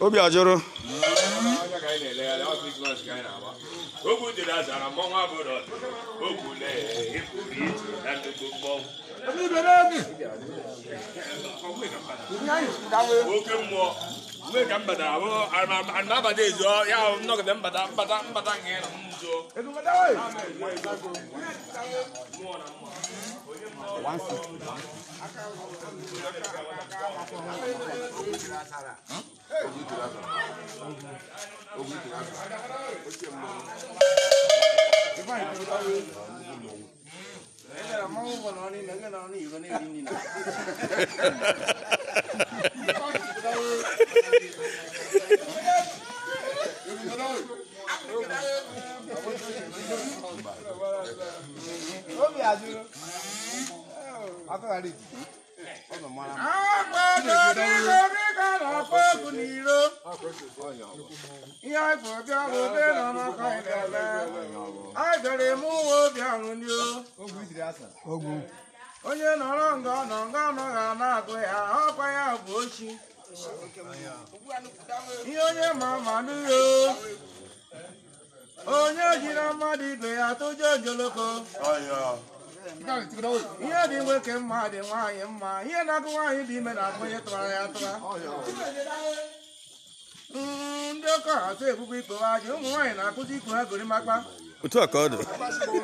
obi ajụrụ oke mmụọ Gue kan pada aku, anak pada itu, ya nak kita pada pada pada ngelak muzo. Itu agbadorigorigo na-akpọ egwu n'iro ihe anyị bụ bịa bụ nọ eme uwe obi onye nọrọ nga nọ nga anọghị a na ya ọkwa ya bụ ochi ihe onye ma ma onye jiri mmadụ ibe ya tụjọ ihe dị nwoke mma dị nwaanyị mma ihe na-agụ nwaanyị dị ime na-agụ onye tụwara ya atụra ndị ọkọ atụ ebubo ikpe aja ụmụ nwaanyị na-akụzi ikpe ha gorimakpa otu a ka ọ dị ndị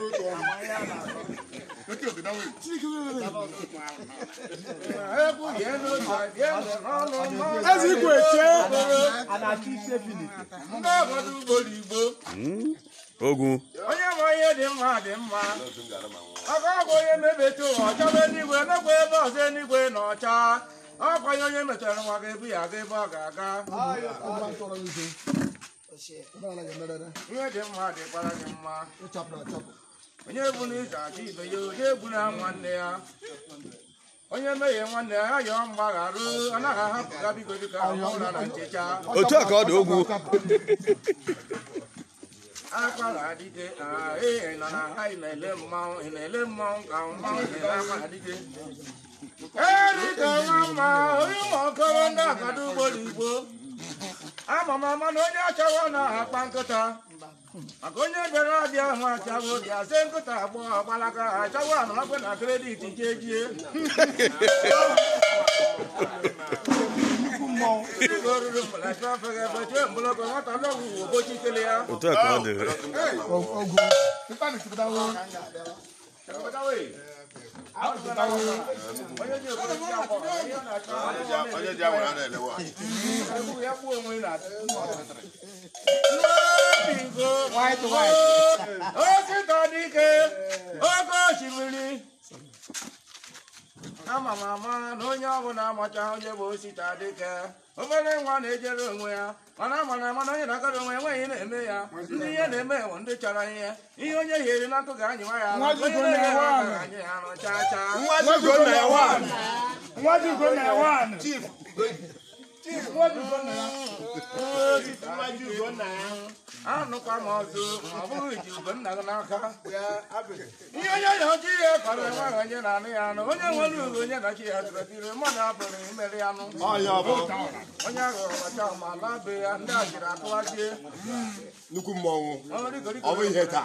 obodo ugbo igbo ogwu onye onye dị dị mma aka onye ebe ọzọ enigwe na ọcha onye ya aga ebe ọ ga-aga ya onye egbu nwanne ya onye nwanne ya anaghị biko dịka ụra ka ọ dị ogwu akwara adike ị nọ na ha ị na-ele mmanwụ ị na-ele mmanwụ ka mmanwụ ị na-akwa adike erika nwa mma onye ụmụ okoro ndị akada ugbo n'igbo ama m ama na onye achọrọ na akpa nkịta maka onye bịara abịa ahụ achagbo bịa ze nkịta agbọghọ gbalaka achagbo anọnakwe na kredit nke ejie òtún ẹ̀kọ́ ọ̀dọ̀ rẹ̀. ọgọ nípa mi ti dáwọ́. ọjọ́ di àwọn ará ẹ̀ lẹ́wọ̀. white white ó sì tọ́ ní ké ó kó ṣìmìlì. ama m ama na onye na amacha onye bụ osita dike obere nwa na-ejere onwe ya mana ama ama na onye na-akara onwe enweghị na-eme ya ndị ihe na-eme bụ ndị chọrọ ihe ihe onye hiere n'akụ ga-anyịwa ya onye na ya nọ chaa chaa Chief, Chief, anụkwa m ọzọ ọ bụghị ji ugonna gị n'aka ihe onye ya ọjị ya kọrọ enweghị onye na-anụ ya anụ onye nwere uru onye na chi ya tụrụtiri mmadụ apụrụ imeri anụ onye ahụ ọcha ma be ya ndị a jiri atụwazie nnukwu mmọnwụ ọ bụ ihe taa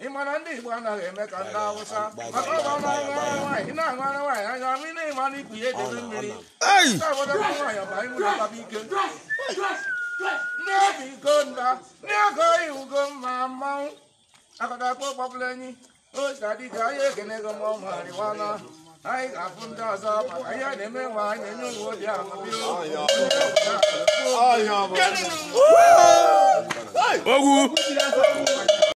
ị na ndị Igbo anaghị eme ka ndị Awụsa maka ọ bụ ọnụ nwaanyị ị na-aṅụ ara nwaanyị anya ma ị na-eme na ikpu ya edebe mmiri ndị obodo bụ nwaanyị ọba imu na baba ike ndị obi igonda ndị ọgọ iwugo mma mmanwụ akọtakpọ kpọpụla enyi otu adịga ahịa ekenego ma ọ marịwana anyị ga-afụ ndị ọzọ maka ihe na-eme nwa anyị enye ụmụ obi amụbi ogwu